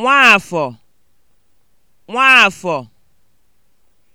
Nwaafọ Nwaafọ